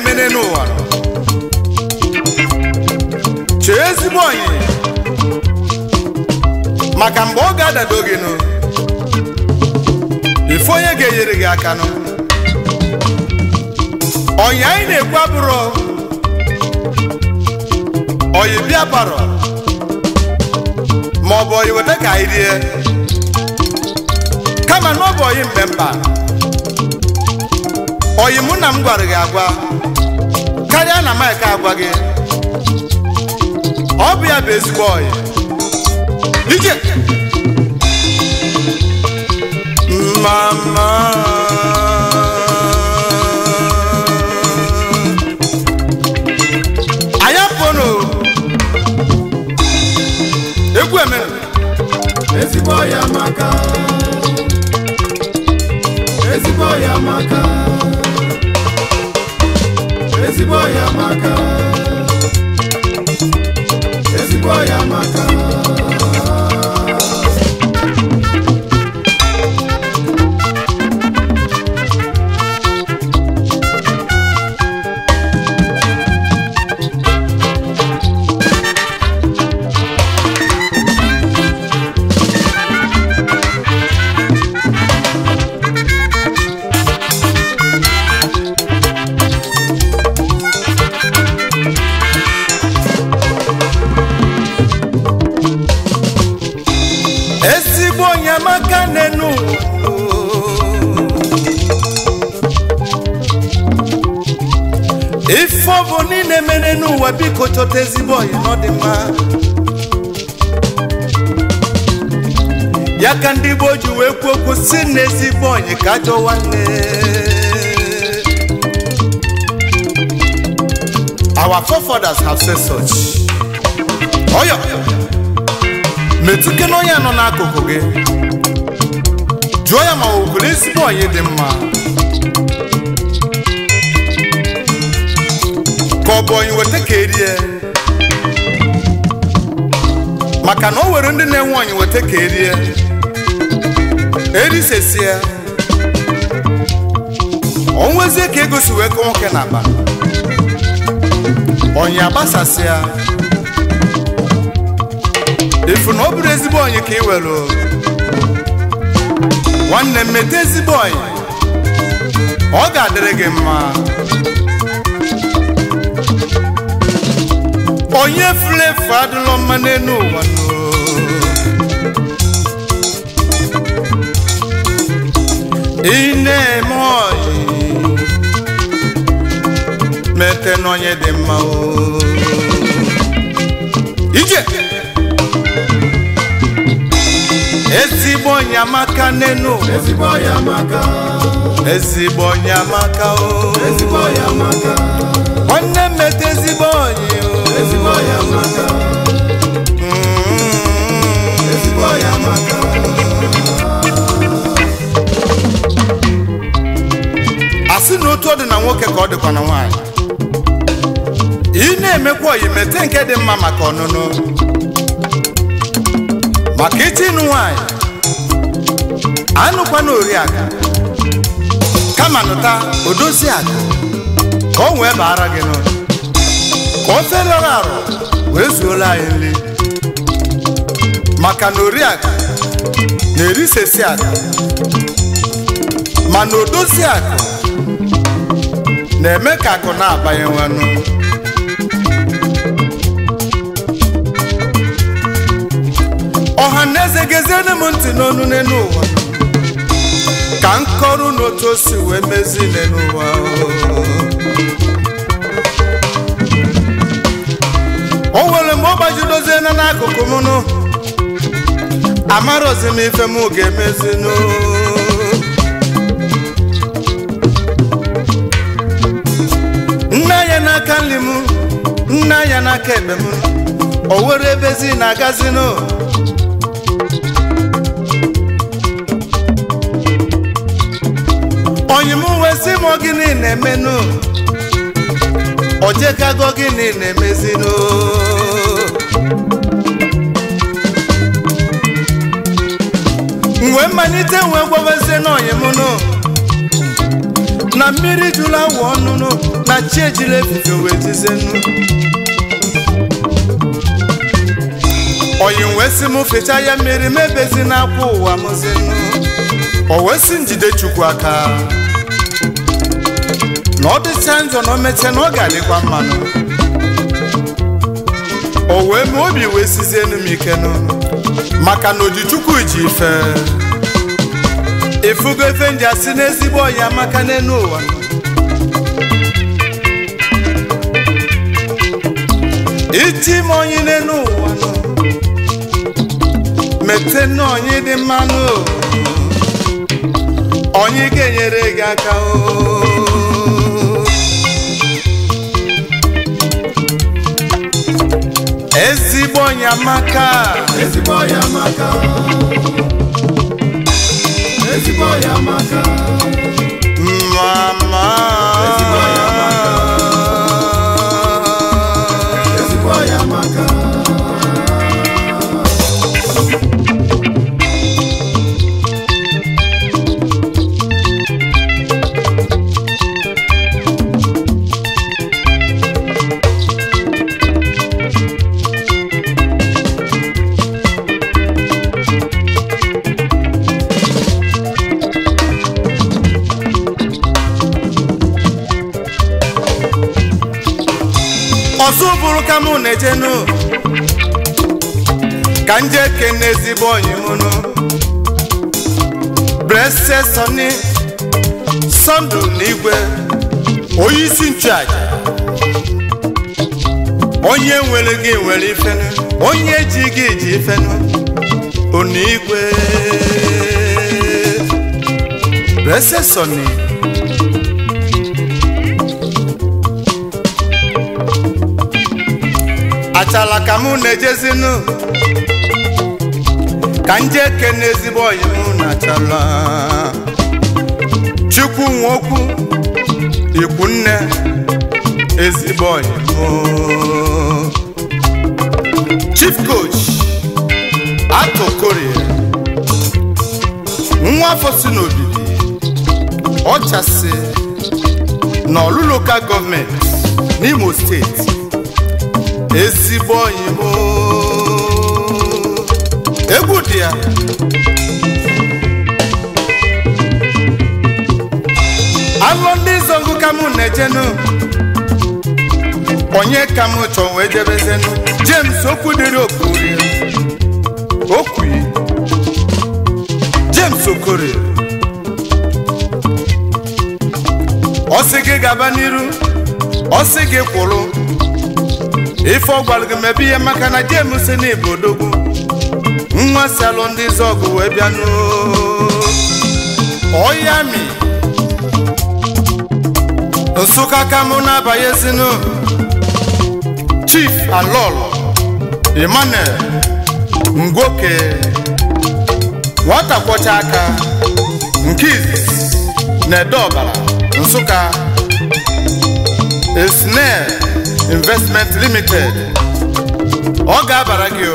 emene n'ụwa chee ezigbo onyi maka mgbe ọ ga-adado gị nụ ife onye ga-enyere gị aka nụ onyi anyị na-ekwu abụrụ oyi bịa baro maọbụ oyi weta ka anyị rie kama na bụ oyi mgbe mba oyi mụ na m gwara gị agwa karịa na Mike agwa gị ọ bụ ya bụ ezigbo oyi ike mama anyị apụnụ egwu emere ezigbo ya maka ezigbo ya maka ezigbo ya maka ezigbo ya maka povo ni ne mene nu wa bi ko cho te zi boy no de ma ya kan di bo ju we ko ko si ne zi boy ka jo wa ne our forefathers have said such oya me tu ke no ya no na ko ko ge joya ma o ko ne zi boy de ma Thank you. ka ọ bụ onye weta ka erie maka na o nwere ndị na-enwe onye weta ka erie erisesie onwezie ka egosi wee kọ nwoke na aba onye agbasasịa ifu na ọ bụrụ ezigbo onye ka ị were nwanne m mete ezigbo onye ọ ga-adịrị gị mma onye flevo adịlọ mma n'elu ụwa ị na-eme mete dị mma ije ezigbo onye amaka n'elu ụwa ezigbo onye amaka o asị na otu ọ dị na nwoke ka ọ dịkwa na nwaanyị ị na-emekwa oyi mete nke dị mma maka ọnụnụ maka ịchịnụ nwanyị, anụkwa n'ori oriaka kama nụta odozi aka, ka o wee baara gị n'ụlọ ka ofe lọrọ arụ wee zuola anyị nri maka na oriaga na-erisesi aga mana odozi akụ na-eme ka akụ na-abanye nwanụ ọha na eze geziere m ntị n'ọnụ n'elu ụwa ka m kọrọ n'otu o wee mezi n'elu ụwa o nwere mgbe ọ gbaji na n'akụkụ mụnụ amarozi m ife m ga emezinụ nne ya n'aka nri m nne ya n'aka ekpe m o were ebezi na agazinụ onye m wee sị m gịnị na-emenụ ojekago jekago gịnị na-emezinu wee mmalite wee gwabazie n'ọyị m nụ na mmiri jụrụ awa ọnụnụ na chi ejila efufe wee jizie nụ oyi wee sị m fecha ya mmiri m ebezi n'akwa ụwa mụzi nụ o wee njide chukwu aka na ọ dịcha njọ na o na ọ ga-adịkwa mmanụ o wee obi wee sizie m ike n'ụlọ maka na ojichukwu ji ife efugo efe ndị asị n'ezigbo ọya maka n'elu ụwa iti m onye n'elu ụwa mete n'onye dị mmanụ onye ga-enyere gị aka o oh. ezigbo onye amaka ezigbo onye amaka ezigbo onye amaka mama ọzọ bụrụ ka mụ na eje nụ, ka nje kene ezigbo onyi mụnụ brese sọni sọndụ n'igwe onye isi nchụaja onye nwere gị nwere ifenu onye ji gị ji ifenu onigwe brese sọni achala ka mụ na-ejezinu ka nje kene ezigbo oyi na achala chukwu nwoke ikwu nne ezigbo oyi mụ chief coach atokori nwa afọ si n'obibi ọchasị na ọlụ ka gọọmenti n'imo steeti ezigbo oyimo egwu dị ya alụ ndị zọgụ ka m na onye ka m chọọ wee jebezenu James okwu dịrị okuri James okori ọsị gị gaba n'iru ọ gị kwụrụ ife ọ gị mebe ihe maka na jemu si na ibodogwu nwa si alụ ndị zọgụ wee bịanụ oyami nsụka kamụ na-abanye ezinụ chief alol emanuel ngwoke nwata kwọcha aka nke na ede ọbara nsụka esnel investment limited ọ ga-abara gị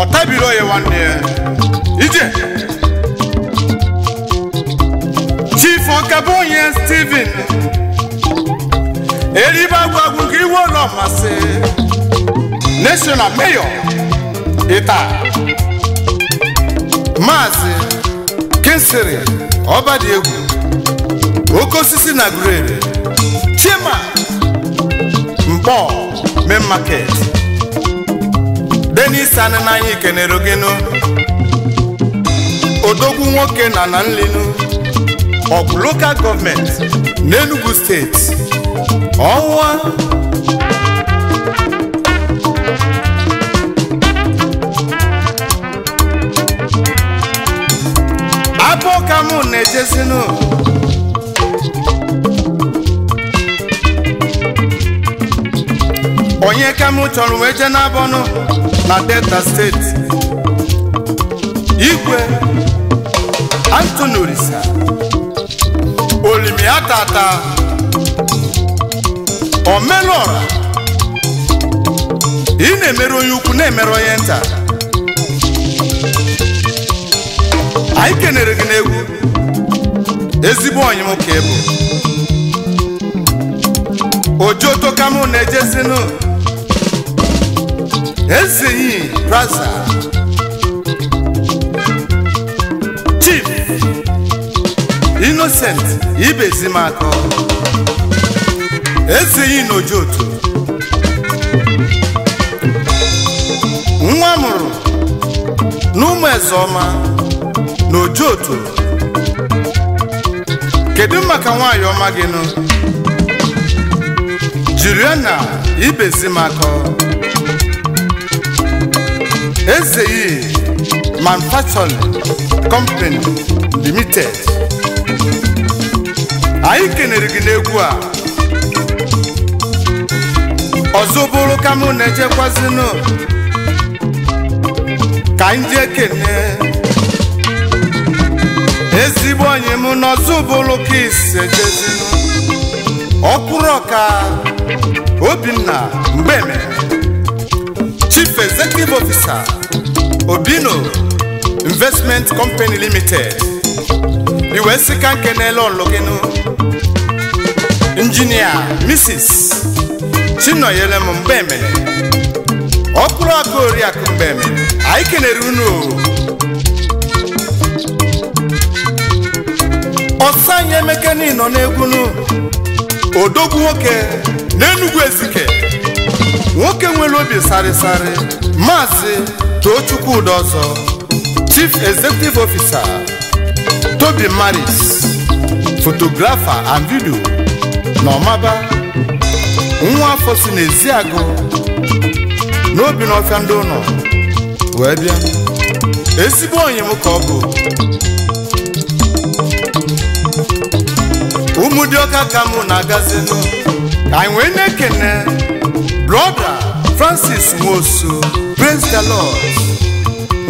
ọtabiro ya nwanne ya ije chief ọkabụnye Steven eribe agwagwu gị iwe ụlọ mmasị national mayor ịta maazị kinsiri ọbadiegwu Okosisi na grade chima pọl main market denis anịnanya kenere ogenu odogwu nwoke na na nlinu ọgwụ lokal gọọmenti n'Enugu steeti ọnwa abụọ ka mụ na-ejezinu ikem chọrọ wee jee n'abọnụ na delta steeti igwe Anthony Orisa olimia tata omelụọra ị na-emere onye ukwu na-emere onye nta anyị kenere gị n'egwu ezigbo onye nwoke bụ na-ejezinụ Ezeyi Braza Chief Innocent Ibezimako n'ojo Nojoto nwa mụrụ n'ụmụ n'ojo otu. kedu maka nwaanyị ọma gị nụ Juliana Ibezimako Ezei Manufacturing Company Limited anyị kenere gị n'egwu a ọzọ bụrụ ka mụ na-ejekwazinụ ka anyị jee kene ezigbo onye m n'ọzọ bụrụ ka ise jezinụ ọkụrụ ọka Obinna Mgbeme chief executive officer obino investment company limited iwe sị ka nkenele ọlụgịnụ injinia mrs chinọnyere m mgbe emere ọkpụrụ ọkụ oriakụ mgbe emere anyị kenere unu ọsọ anyị niile nọ n'egwunu odogwu nwoke na Ezike nwoke nwere obi sarịsarị maazị Tochukwu ọzọ Chief Executive Officer Toby Maris fotografa and video na ọmaba nwa afọ si n'ezi agụ n'obi n'ọfịa ndị ụlọ wee bịa ezigbo onye m ka ọ bụ ụmụ dị ọka ka mụ na-agazinụ anyị wee na-ekene Brother Francis Nwosu praise the Lord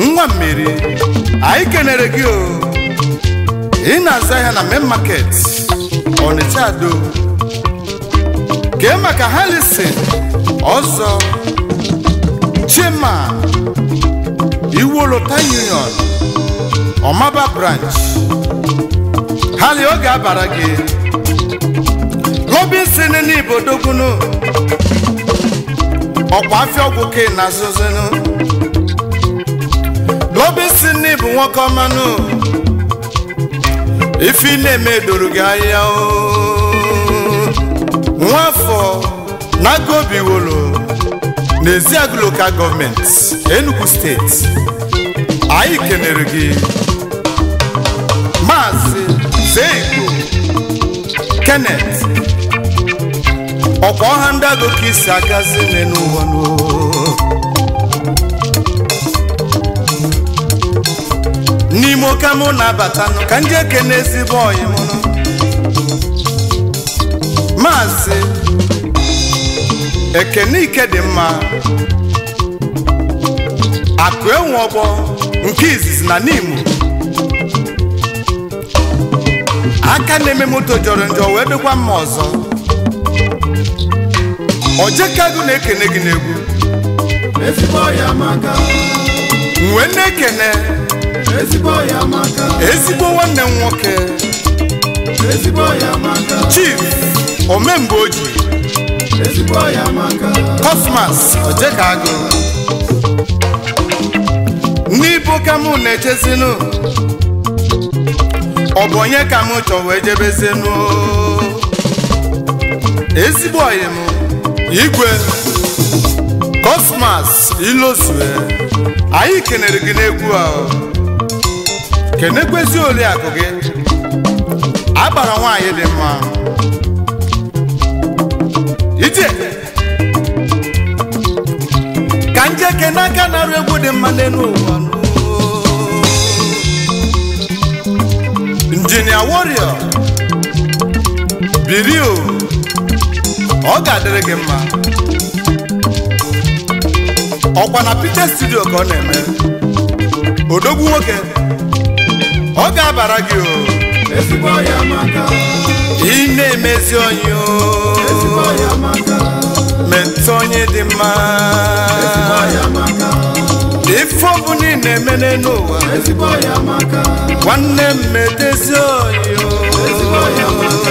nwa mmiri anyị kenere gị o ị na aza ya na main market Ọnịcha Ado kee maka Harrison ọzọ Chima Iwolota Union Ọmaba branch hali oge abara gị n'Ibodo n'Ibodogunu ọkwa afịa ọgwụ ke na azụzụnụ n'obi si bụ nwoke ọmanụ ife na-eme doro gị anya nwafọ n'aka obi wolo n'ezi agụ lokal gọọmenti Enugu steeti anyị kenere gị maazị Zeigbo Kenneth ọkwa ọha ndị agụ ka isi agazi nne n'ụwa n'ime oke mụ na-abata ka ndị eke n'ezigbo ọyị mụrụ maazị ekene ike dị mma akụ enwe ọgbọ nke izizi na n'imo aka na-eme moto jọrọ njọ wee dịkwa mma ọzọ ojekago na-ekene gị n'egwu uwe na-ekene ezigbo nwanne m nwoke chief omemgbe oji kosmas ojekago n'ibo ka mụ na-echezinu ọ bụ onye ka m chọwa ejebezinụ. ezigbo ọyị m igwe kosmas ilosue anyị kenere gị n'egwu a kenekwezi oriakụ gị agbara nwaanyị dị mma ije ka njeke n'aka na-arụ egwu dị mma n'elu ụwa injinia warrior birio ọ ga-adịrị gị mma ọkwa na Peter studio ka ọ na-eme odogwu nwoke ọ ga-abara gị o maka. na-emezi onye o metụ onye dị mma ife ọbụ ni na-eme n'elu ụwa nwanne m metezi onye